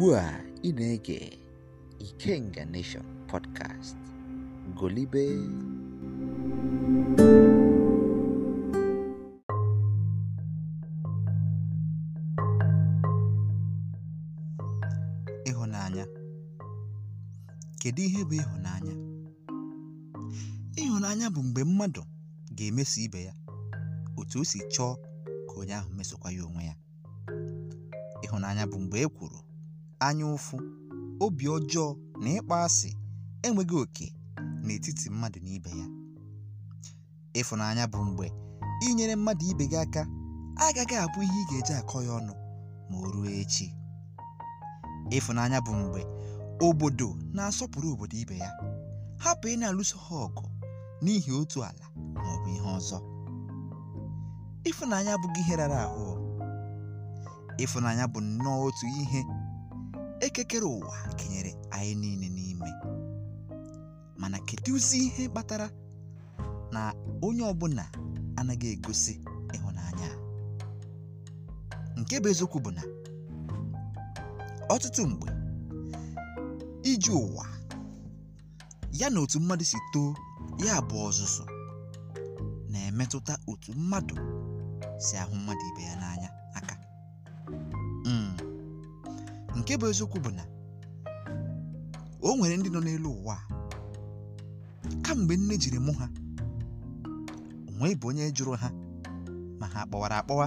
ugbu a ị na-ege Ikenga Nation podcast golibe ịhụnanya kedu ihe bụ ịhụnanya ịhụnanya bụ mgbe mmadụ ga-emeso ibe ya otu o si chọọ ka onye ahụ mesokwa ya onwe ya ịhụnanya bụ mgbe e kwuru anya ụfụ, obi ọjọọ na ịkpọ asị enweghị oke n'etiti mmadụ na ibe ya ịfụnanya bụ mgbe inyere mmadụ ibe gị aka agaghị abụ ihe ị ga-eji akọ ya ọnụ ma o ruo echi ịfụnanya bụ mgbe obodo na-asọpụrụ obodo ibe ya hapụ ị na-alụso ha ọgụ n'ihi otu ala ma ọ bụ ihe ọzọ ịfụnanya abụghị ihe rara ahụ ịfụnanya bụ nnọọ otu ihe ekekere ụwa kenyere anyị niile n'ime mana kedụzi ihe kpatara na onye ọbụla anaghị egosi ịhụnanya nke bụ bụ na ọtụtụ mgbe iji ụwa ya na otu mmadụ si too ya bụ ọzụzụ na-emetụta otu mmadụ si ahụ mmadụ ibe ya n'anya nke bụ eziokwu bụ na o nwere ndị nọ n'elu ụwa kamgbe nne jiri mụ ha onwe bụ onye jụrụ ha ma ha kpọwara akpọwa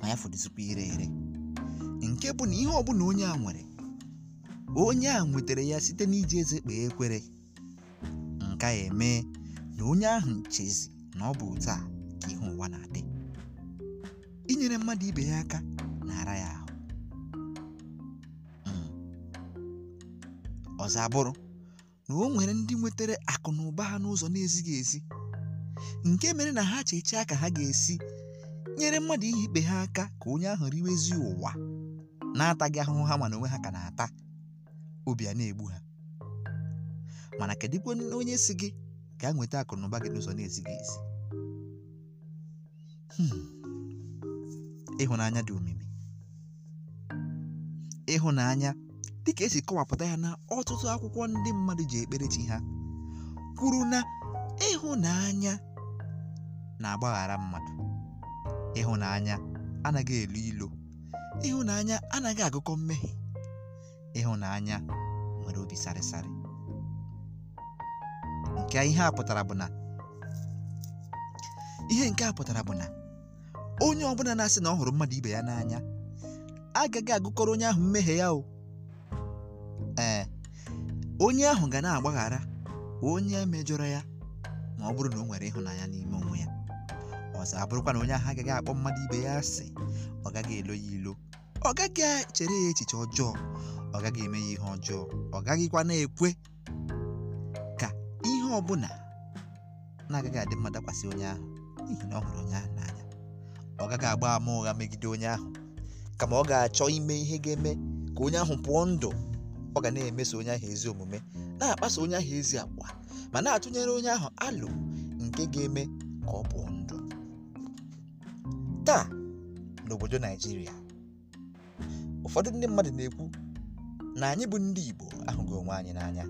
ma ya fọdụzikwa ire ere nke bụ na ihe ọbụla onye a nwere onye a nwetara ya site n'iji eze kpee ekwere nke a eme na onye ahụ chezi na ọ bụ otu a ka ihe ụwa na-adị inyere mmadụ ibe ya aka ọzọ abụrụ na o nwere ndị nwetara akụ na ụba ha n'ụzọ na-ezighị ezi nke mere na ha chechaa ka ha ga-esi nyere mmadụ ihe ikpe ha aka ka onye ahụ riwezi ụwa na-ataghị ahụhụ ha mana onwe ha ka na-ata obi a na-egbu ha mana kedụkwa onye si gị gaa nweta akụ na gị n'ụzọ na-ezighị ezi hmm. ịhụnanya dị omimi ịhụnanya ka esi kọwapụta ya na ọtụtụ akwụkwọ ndị mmadụ ji ekpere chi ha kwuru na ịhụnanya na-agbaghara mmadụ ịhụnanya anaghị elu ilo ịhụnanya anaghị agụkọ mmehie ịhụnanya nwere obi sarịsarị nke ihe a pụtara bụ na ihe nke a pụtara bụ na onye ọbụla na-asị na ọ hụrụ mmadụ ibe ya n'anya agaghị agụkọrọ onye ahụ mmehie ya o onye ahụ ga na-agbaghara onye mejọrọ ya ma ọ bụrụ na o nwere ịhụnanya n'ime onwe ya ọzọ abụrụkwa na onye ahụ agaghị akpọ mmadụ ibe ya asị ọ gaghị elo ya ilo ọ gaghị echere ya echiche ọjọọ ọ gaghị eme ya ihe ọjọọ ọ gaghịkwa na-ekwe ka ihe ọ bụla na-agaghị adị mma dakwasị onye ahụ n'ihi na ọ hụrụ onye ahụ n'anya ọ gaghị agba ama ụgha megide onye ahụ kama ọ ga-achọ ime ihe ga-eme ka onye ahụ pụọ ndụ ọ ga na-emeso onye ahụ ezi omume na-akpaso onye ahụ ezi agwa ma na-atụnyere onye ahụ alụ nke ga-eme ka ọ pụọ ndụ taa n'obodo naijiria ụfọdụ ndị mmadụ na-ekwu na anyị bụ ndị igbo ahụghị onwe anyị n'anya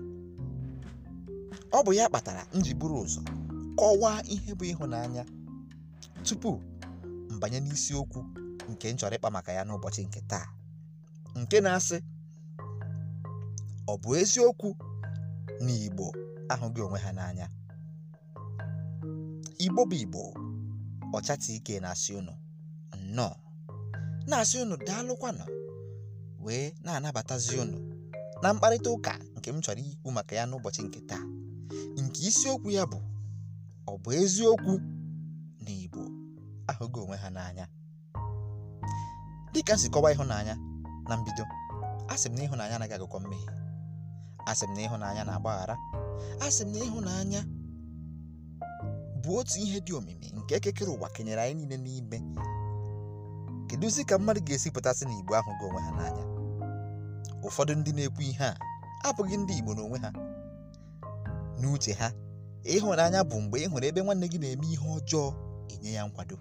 ọ bụ ya kpatara m ji buru ụzọ kọwaa ihe bụ ịhụnanya tupu mbanye n'isiokwu nke nchọrọ chọrọ ịkpa maka ya n'ụbọchị nke taa nke na-asị ọ bụ eziokwu na Igbo ahụghị onwe ha n'anya Igbo bụ Igbo ọchata ike na-asị unu nnọọ na-asị unu daalụkwanụ wee na-anabatazi unu na mkparịta ụka nke m chọrọ ikwu maka ya n'ụbọchị nke taa nke isiokwu ya bụ ọ bụ eziokwu na Igbo ahụghị onwe ha n'anya dịka m si kọwaa ịhụnanya na mbido a sị m na ịhụnanya anaghị agụkọ mmehie asị m na ịhụnanya na-agbaghara asị m na ịhụnanya bụ otu ihe dị omimi nke ekekere ụwa kenyere anyị niile n'ime kedụzi ka mmadụ ga-esi pụtasị na igbo ahụ gị onwe ha n'anya ụfọdụ ndị na-ekwu ihe a abụghị ndị igbo n'onwe ha n'uche ha ịhụnanya bụ mgbe ị hụrụ ebe nwanne gị na-eme ihe ọjọọ enye ya nkwado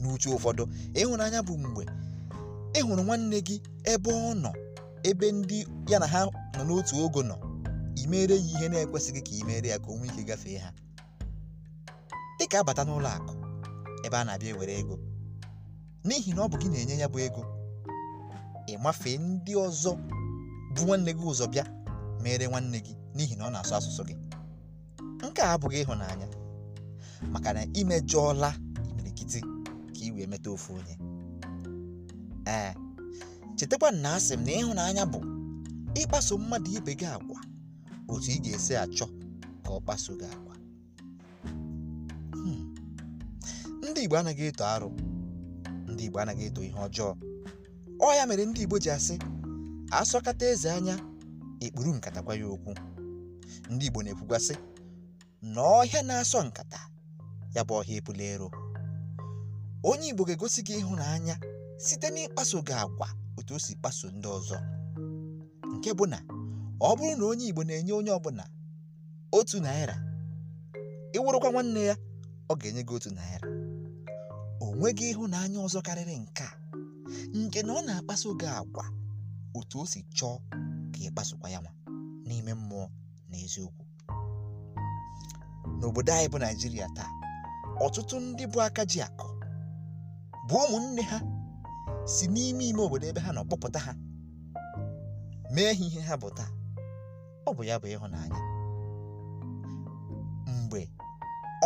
n'uche ụfọdụ ịhụnanya bụ mgbe ị hụrụ nwanne gị ebe ọ nọ ebe ndị ya na ha nọ n'otu ogo nọ imere ya ihe na-ekwesịghị ka imere ya ka onwe ike gafee ha dị ka abata n'ụlọ akụ ebe a na-abịa ewere ego n'ihi na ọ bụ gị na-enye ya bụ ego mafee ndị ọzọ bụ nwanne gị ụzọ bịa mere nwanne gị n'ihi na ọ na-asụ asụsụ gị nke a abụghị ịhụnanya maka na imejọọla imirikiti ka ị wee meta ofu onye ee chetakwa na asị m na ịhụnanya bụ ịkpaso mmadụ ibe gị agwa otu ị ga-esi achọ ka ọ kpaso gị agwa hmm. ndị Igbo anaghị eto arụ ndị Igbo anaghị eto ihe ọjọọ ọ ya mere ndị Igbo ji asị asọkata eze anya ekpuru nkata gwa ya okwu ndị Igbo na ekwugwasị na ọhịa na-asọ nkata ya bụ ọhịa ebula ero onye Igbo ga-egosi gị ịhụnanya site n'ịkpaso gị agwa otu o si kpaso ndị ọzọ nke bụ na ọ bụrụ na onye Igbo na-enye onye ọbụla otu naira ịwụrụkwa nwanne ya ọ ga-enye gị otu naira o nweghị ịhụnanya ọzọ karịrị nke a nke na ọ na-akpaso gị agwa otu o si chọọ ka ị kpasokwa ya nwa n'ime mmụọ na eziokwu n'obodo anyị bụ Naijiria taa ọtụtụ ndị bụ aka ji akụ bụ ụmụnne ha si n'ime ime obodo ebe ha nọ kpọpụta ha mee ha ihe ha bụ taa ọ bụ ya bụ ịhụnanya mgbe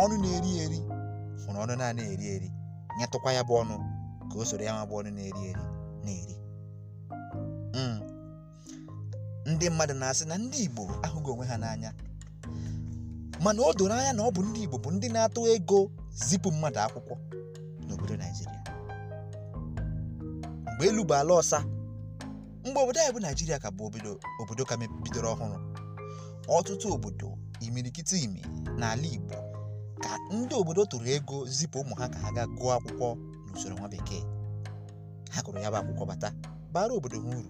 ọnụ na-eri eri hụrụ ọnụ na-eri eri nyetụkwa ya bụ ọnụ ka o soro ya ma bụ ọnụ na-eri eri na-eri hmm. ndị mmadụ na-asị na ndị Igbo ahụghị onwe ha n'anya mana o doro anya na ọ bụ ndị Igbo bụ ndị na-atụ ego zipụ mmadụ akwụkwọ n'obodo Naijiria mgbe elu bụ ala ọsa mgbe obodo anyị bụ naijiria ka bụ obodo ka bidoro ọhụrụ ọtụtụ obodo imirikiti imi n'ala igbo ka ndị obodo tụrụ ego zipụ ụmụ ha ka ha gaa gụọ akwụkwọ n'usoro nwa bekee ha kụrụ ya bụ akwụkwọ bata bara obodo ha uru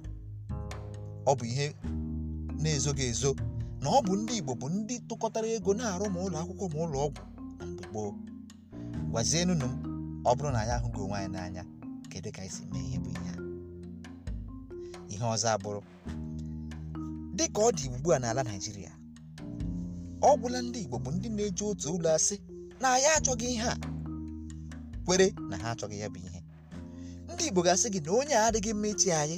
ọ bụ ihe na-ezoghị ezo na ọ bụ ndị igbo bụ ndị tụkọtara ego na-arụ ma ụlọ akwụkwọ ma ụlọ ọgwụ na mgbe gboo gwazienunu m ọ bụrụ na anyị ahụghị onwe anyị n'anya kedu ka anyị si mee ihe bụ ihe ihe ọzọ abụrụ dị ka ọ dị ugbu a n'ala naijiria ọ gwụla ndị igbo bụ ndị na-eji otu ụlọ asị na ya achọghị ihe a kwere na ha achọghị ya bụ ihe ndị igbo ga-asị gị na onye a adịghị mma ichi anyị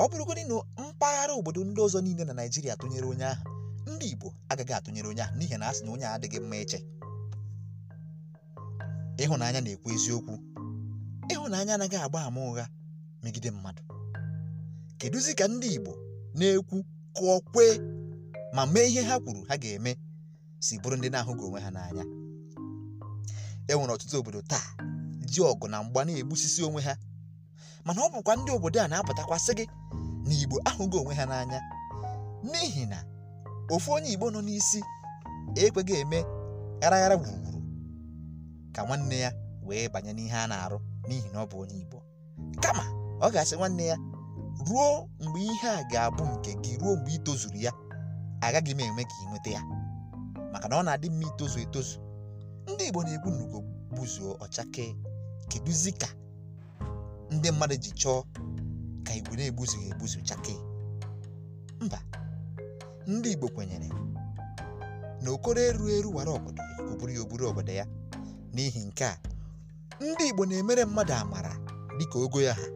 ọ bụrụgodị na mpaghara obodo ndị ọzọ niile na naijiria tụnyere onye ahụ ndị igbo agaghị atụnyere onye ahụ n'ihi na a sị na onye a adịghị mma iche ịhụnanya na-ekwu eziokwu ịhụnanya anaghị agba ama ụgha megide mmadụ kedụzi ka ndị Igbo na-ekwu kụọ kwee ma mee ihe ha kwuru ha ga-eme si bụrụ ndị na-ahụghị onwe ha n'anya e nwere ọtụtụ obodo taa ji ọgụ na mgba na-egbusisi onwe ha mana ọ bụkwa ndị obodo a na-apụtakwasị gị na Igbo ahụghị onwe ha n'anya n'ihi na ofu onye Igbo nọ n'isi ekweghị eme gharaghara gburugburu ka nwanne ya wee banye n'ihe a na-arụ n'ihi na ọ bụ onye Igbo kama ọ ga-asị nwanne ya ruo mgbe ihe a ga-abụ nke gị ruo mgbe ị tozuru ya agaghị m enwe ka ị nweta ya maka na ọ na-adị mma itozu etozu ndị Igbo na egbu n'ugo buzuo ọchake kedụzi ka ndị mmadụ ji chọọ ka Igbo na-egbuzughị egbuzu chake mba ndị Igbo kwenyere na okoro eru eru wara obodo oburu ya oburu obodo ya n'ihi nke a ndị Igbo na-emere mmadụ amara dịka ogo ya ha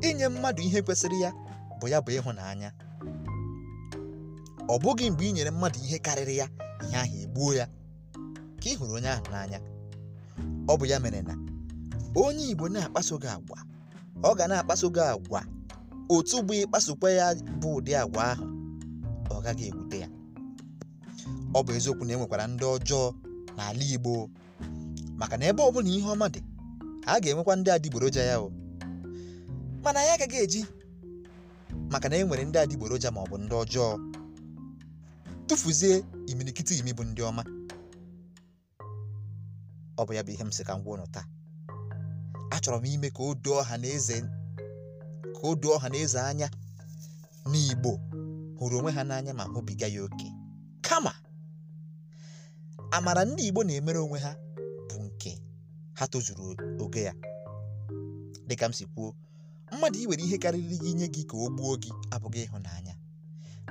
inye mmadụ ihe kwesịrị ya bụ ya bụ ịhụnanya ọ bụghị mgbe i nyere mmadụ ihe karịrị ya ihe ahụ egbuo ya ka ị hụrụ onye ahụ n'anya ọ bụ ya mere na onye Igbo na-akpaso gị agwa ọ ga na-akpaso gị agwa otu bụ ịkpasokwa ya bụ ụdị agwa ahụ ọ gaghị ewute ya ọ bụ eziokwu na enwekwara ndị ọjọọ n'ala Igbo maka na ebe ọ bụla ihe ọma dị a ga-enwekwa ndị adịgboroja ya o mana anyị agaghị eji maka na e nwere ndị adịgboroja ma ọ bụ ndị ọjọọ tụfuzie imirikiti imi bụ ndị ọma ọ bụ ya bụ ihe m sị ka m ụnụ taa achọrọ m ime ka o doo ọha na eze ka o doo ọha na eze anya n'Igbo hụrụ onwe ha n'anya ma hụbiga ya oke kama amara ndị Igbo na-emere onwe ha bụ nke ha tozuru oge ya dịka m si kwuo mmadụ iwere ihe karịrị gị inye gị ka o gbuo gị abụghị ịhụnanya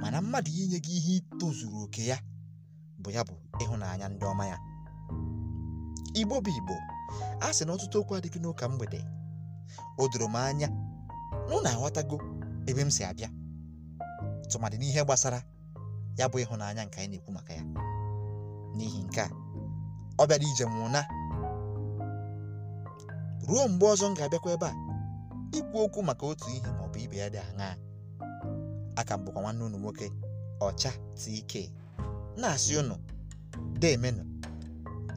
mana mmadụ inye gị ihe itozuru oke ya bụ ya bụ ịhụnanya ndị ọma ya igbo bụ igbo a sị na ọtụtụ okwu adịghị n'ụka mgbede o doro m anya na unu aghọtago ebe m si abịa tụmadị n'ihe gbasara ya bụ ịhụnanya nke anyị na-ekwu maka ya n'ihi nke a ọ bịara ije m ụna ruo mgbe ọzọ m ga-abịakwa ebe a ikwu okwu maka otu ihe ma ọ bụ ibe ya dị aṅaa aka m bụkwa nwanne unu nwoke ọcha tk na-asị unu demenụ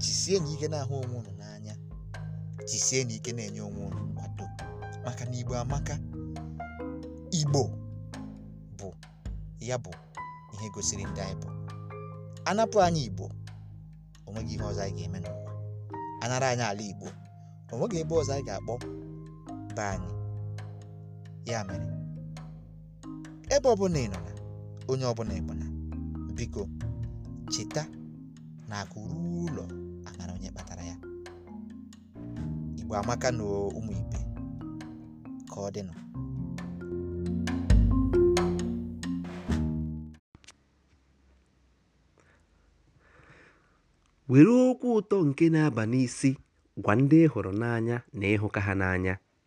jisie na ike na-ahụ onwe unu n'anya jisie na ike na-enye onwe unu nkwado maka na igbo amaka igbo bụ ya bụ ihe gosiri ndị anyị bụ anapụ anya igbo onweghị ihe ọzọ anyị ga-eme n'ụwa anara anyị ala igbo onweghị ebe ọzọ anyị ga-akpọ be anyị ya mere ebe ọbụla ị nọ na onye ọbụla ịbụ na biko cheta na akụ ruo ụlọ amara onye kpatara ya igbo amaka na ụmụ ibe ka ọ dịnụ were okwu ụtọ nke na-aba n'isi gwa ndị ị hụrụ n'anya na ịhụka ha n'anya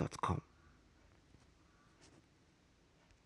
gmail.com.